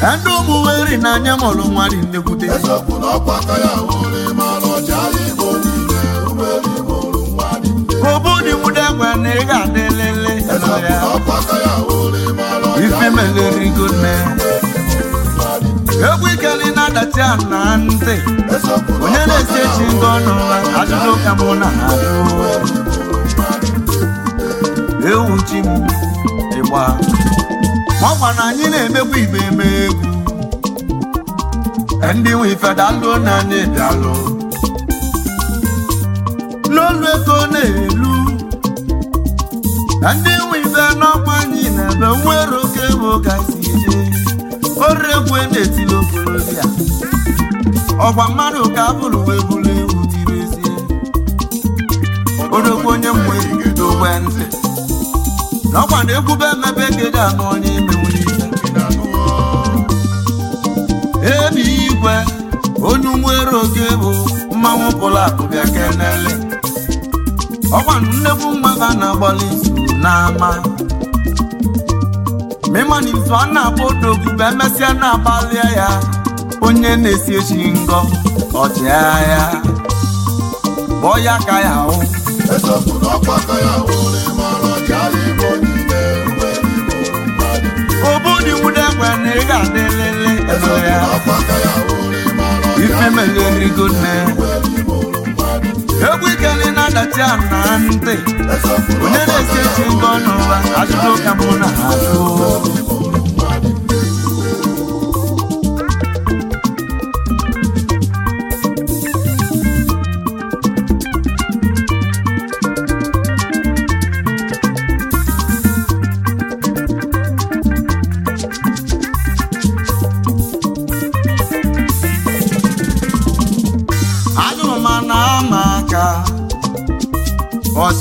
ndị ụmụ weri mọlụ ọkwa were mara ọcha mụrụ nwa dị nne obu dị nwude na ị ga-adị lele eziokwu ife meleri egwu ikeli na-adachi na ntị onye na-esi echi ndị ọnụ ajụjụ ka mụ na ha ewu chi m ịgba ọgwa na anyị na-emekwa igbe eme egwu ndị nwe ife dalụo na anyị bịalụ n'olu ego na-elu ndị nwe ife n'ọkwa anyị na-ebe nwere oke ego gazi egwu e na-etili okorobịa ọgwa mmadụ ka abụrụ wee bụrụ ewu dịrezie oregwu onye mmụ ebido ogwe ntị n'ọkwa na egwube emebe gị ga-anụ onye ime onye ebe igwe onye nwere oge bụ mmanwụ pụrụ akụ bịa kenele ọkwanụ nnekwu mmaba na-agbalị n'ama mịmanụ izu a na-akpọ odogwu emesịa na-agbalịa ya onye na-esi echi ngọ ọchịagha bọ ya ka ya hụ ekwe na ị ga-adịlịlị ego ya ife ndị egwu ikeli na-adachi na ntị onye na-ekechi ngọ n'ụwa ka mụ na ha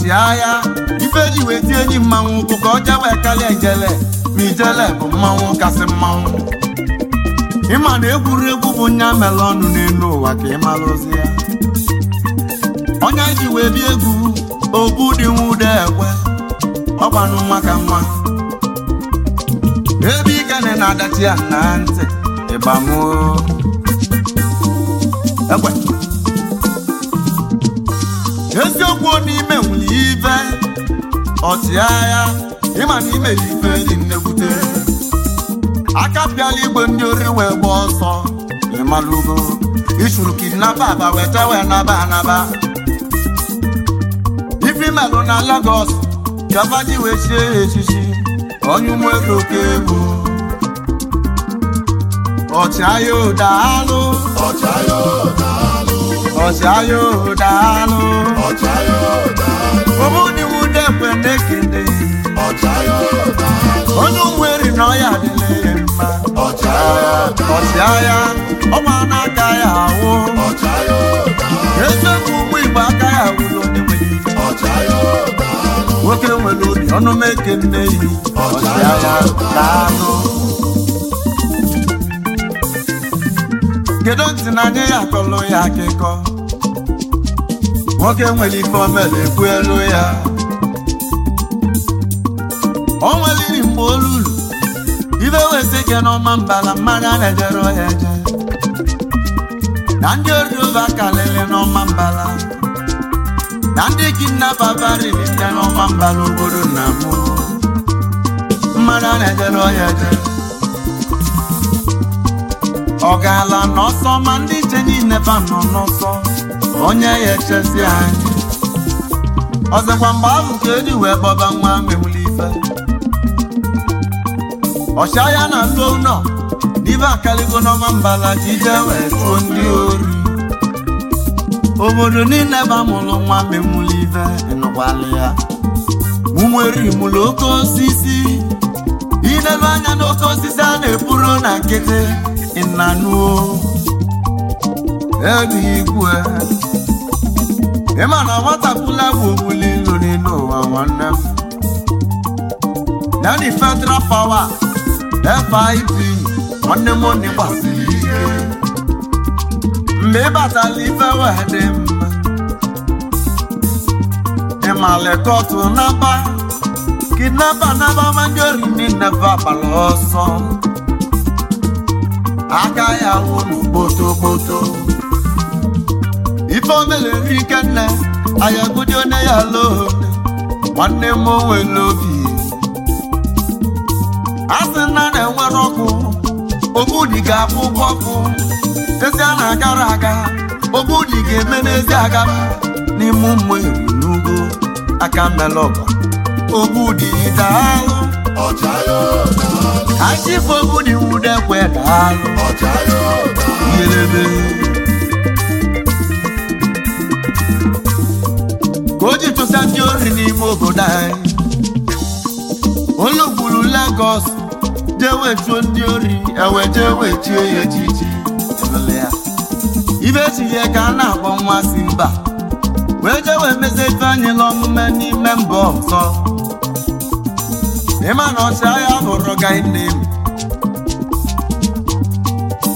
ji agha ife ji wee tie enyi mmanwụ ụkwụ ka ọ wee karịa ijele ma ijele bụ mmanwụ kasị mmanwụ ịma na egwuregwu bụ nya mere ọnụ n'elu ụwa ka ịmara ozi ya onye ji wee bịa egwu obu dị nwude ekwe ọgbanụ nwa ka nwa ebe ikene na-adachi ya na ntị ịgbamoo ekwe eziokwu n'ime nwere ibe ọchịagha ịma na imere ife dị nnekwute aka igwe ndị ori wee gba ọsọ ịmalugo ichuru kidnapa aba weta wee naba anaba ifimelụ na Lagos gavaji wee chie ya echichi onye ụmụego oke egwu ọchịagha ụdaalụ ọchịagha ọcha ya ụdaalụ ọbụniwu na na-ekele onye na ya mma ọcha ya ọnwa na-aka ya ahụ ezebụ ụgbọ igbo aka ya onye nwoke nwere obi ọnụ meke nne ya daalụ kedu ntị na akọlụ ya akịkọ nwoke nwere ife omere ekwu elu ya o nwere iri mgbe olulu ibe wesi ike n'ọma mbala mmanya na-ejere ọhịa eje na ndị oriova kalịrị n'ọma mbala na ndị kidnapa barili nke n'ọma mbala obodo na m mmanya na-ejere ọhịa eje ọ gaala n'ọsọ ma ndị nche niile ba nọ n'ọsọ onye ya echezi anyị ọzọkwa mgbe ahụ ka eji wee kpọba nwa mewuli ife ọcha ya na ndị nọ n'ibe akaligo n'ọma mbala jide wee tụọ ndị ori obodo niile ba mụrụ nwa mewuli ife nụkwalị ya mụmeri mụrụ oke osisi ilelu anya n'oke osisi a na-eburu na nkịtị ịnanuo Ị ma na nwatapụla bụ omuli nri n'ụwa nwanne m na ndị federal power FIP nwanne m onye gbasiri ike mgbe ịbatala ife dị mma ịma lekọtụ naba kidnapa naba manjorini neva gbara ọsọ aka ya wụ n'okpotokpoto omere Ikenna anyị agụdị onye ya ala nwanne m onwe obi a sị na na-enwere ọkụ ogbudi ga-abụ ọkụ ezi a na-agara aga ogbudi ga-eme n'ezi aga n'ime ụmụ eri n'ugwu aka melọba ogbudi daalụ achịfụ ogbudi nwude daalụ na ndị ori n'ime obodo anyị ologburu Lagos jewe chuo ndị ori ewe jewe chie ya echichi ibe echighị ka a na-akpọ nwa si mba wee jewe mezi etu anyị la omume n'ime mba ọzọ ịma na ọchịagha bụrụ gainem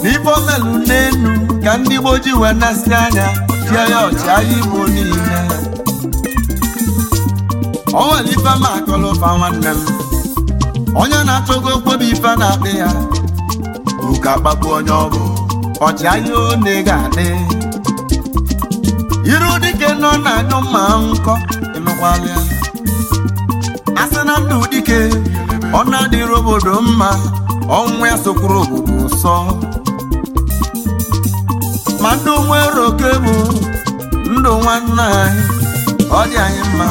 n'ibe omelu n'elu ka ndị Igbo wee na anya tie ya ọchịagha Igbo niile onwere ife ma akọlụ nwanne m onye na-atụgo okpobi ife na-akpị ya uka kpagbu onye ọbụ ọchịagha one ga-adị iru dike nọ na-anyụ mma nkọ ịnụkwala ya asị na ndụ dike ọ na-adịrị obodo mma ọnwụ ya sokwuru obodo ụsọ ma ndụ nwere oke bụ ndụ nwanne anyị ọ dị anyị mma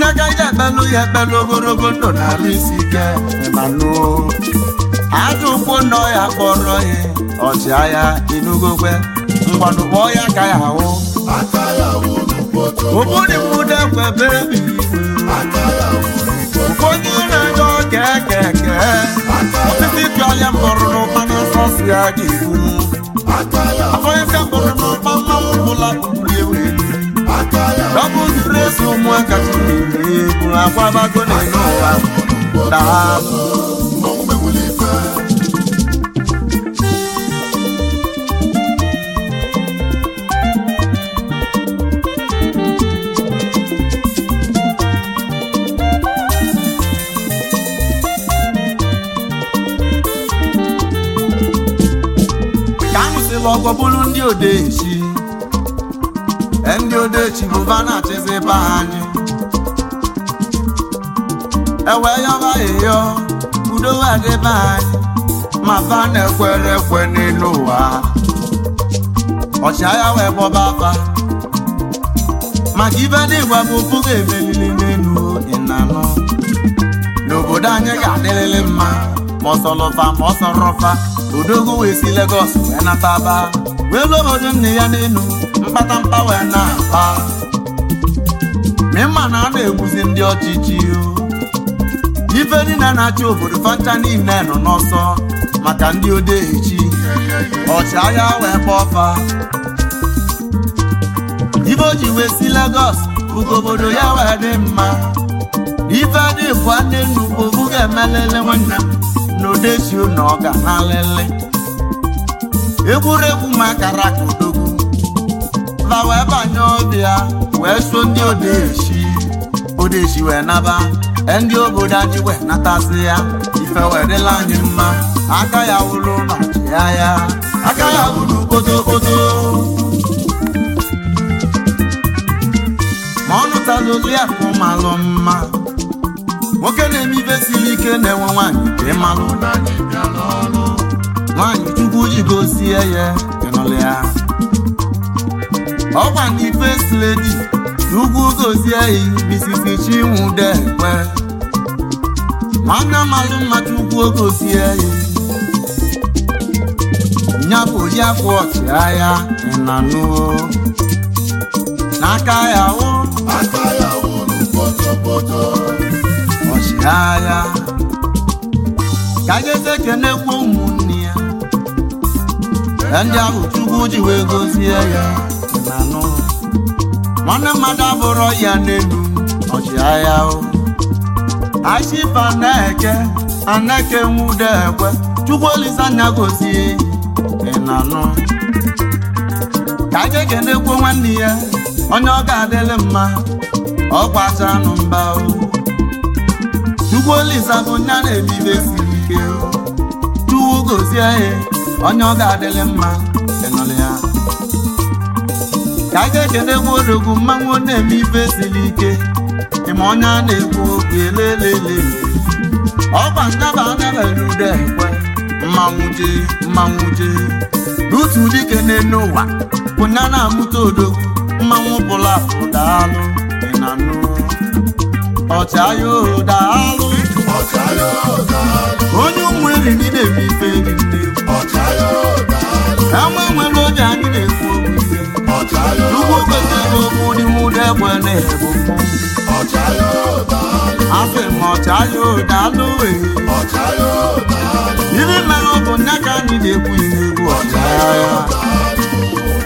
nne agaghị akpalụ ya akpalụ ogologo ndụ na-arụ isi ike manụ aja ụkwụ nọ ya kpọrọ ya ọchịagha inugokwe ngwanụ kpọọ ya ka ya ahụ ụbụrụ mụda kwebe onye na-enye ọka eke eke osisi pịọya mkpọrọ n'ụkpana sọsi ya ga-ebu afọ ya ka mkpọrọ n'ụkpa mmanwụ Double stress ụmụaka chikwuru akwabago n'elu ụwa daalụ ka m sịrị ọgọ bụrụ ndị echi. ndị odechi bụva na-achịziba anyị ewe yọba Ịyọ udo adịba anyị ma fa na-ekwere ekwe n'elu ụwa ọchịagha wee kpọba afa maka ibe ndị bụ pụga emelili n'elu ịnanụ n'obodo anyị ga-adịrịrị mma ma ọsọlọfa ma ọsọrọfa odogwu wee si Lagos wee nataba wee lụ obodo nne ya n'elu Mkpata wee na-akpa mịmma na a na-egbuzi ndị ọchịchị ife niile na-achị obodo fanta niile nọ n'ọsọ maka ndị odechi ọchịagha wee kpọọ fa ife o ji wee si legos bụgo obodo ya wee dị mma ife dị bụ nne nnu bụ obu ga-emelele nwanne m na odechi na ọ na lele egwuregwu ma akara ka udo nọmba wee banye obi ya wee so ndị odeshi odeshi wee naba ndị obodo anyị wee natasị ya ife wedịla anyị mma aka ya wụrụ ma ya ya aka ya wụrụ kpotokpoto ma ọ nụtala olu ya ka ụmalụ mma nwoke na-eme ife siri ike na-enwe nwaanyị dị mmalụ nwaanyị chukwu ji gosie ya ịnụlụ ọkwa ndị first lady ugwu gozie Mrs. Chinwude Ekwe mana mmadụ mmadụ ugwu gozie ya bụ ya bụ ọchịagha ịnanụo n'aka ya wụ ọchịagha ka geze kenekwu ụmụnne ya ndị ahụ Chukwu ji wee gozie ya nwanne mmadụ abụrụ ya n'elu ọchịagha ashipa na-eke aneke nwude ekwe chukwu olisa anya gosi ị na-anụ ka aka ekenekwo nwanne ya onye ọ ga-adịlị mma ọ gbachaanụ mba chukwu olisa bụ nya na-ebibe siri ike chukwu gozie onye ọ ga-adịlị mma ịnụlị ka a ga-ekene nwaorogu mmanwụ na-eme ibe siri ike ịma onye a na-ekwu okwu elelele ọgba ndaba anabere udo ekwe mmanwụ jee mmanwụ jee n'otu dike n'ụwa pụna na-amụta odogwu mmanwụ bụla ụdaalụ daalụ ị na nụ ọchịagha oho daalụ onye ụmụ eri niile eme ife dị nne ama nwere oge anyị na-ekwu okwu ise ugbo kwesịrị okwu n'ihu egbe na-ebu asị ma ọchaya daalụ iri mere ọbụ bụ nne ka anyị na-ekwu ihu ọchaya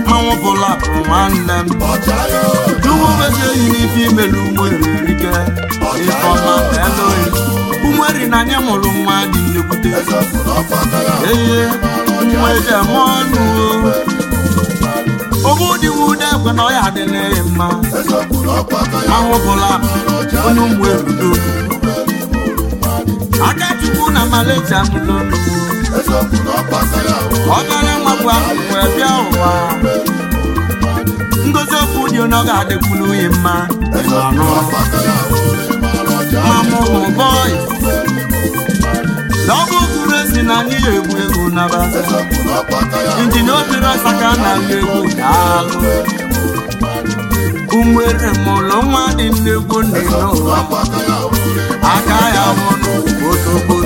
mmanwụ bụla bụ nwanne m ugbo kwesịrị n'ife imelu e wererike ifeọma eloi umeri na anyị mụrụ nwa dị nnekwute ee nweta m ọnụ oge ụdịwa ụdị na ọya adịla ya mma ahụbụla onye ụmụ erudo aka chukwu na malacha mụdo ọbara nwakwa wee bịa ụwa ngozi okwu dị ọ ga-adịkwuru ya mma naba injinia ọsaka na nnegwu daalụ unwere mụlụ nwa dị ụwa aka ya mụnụ otogbo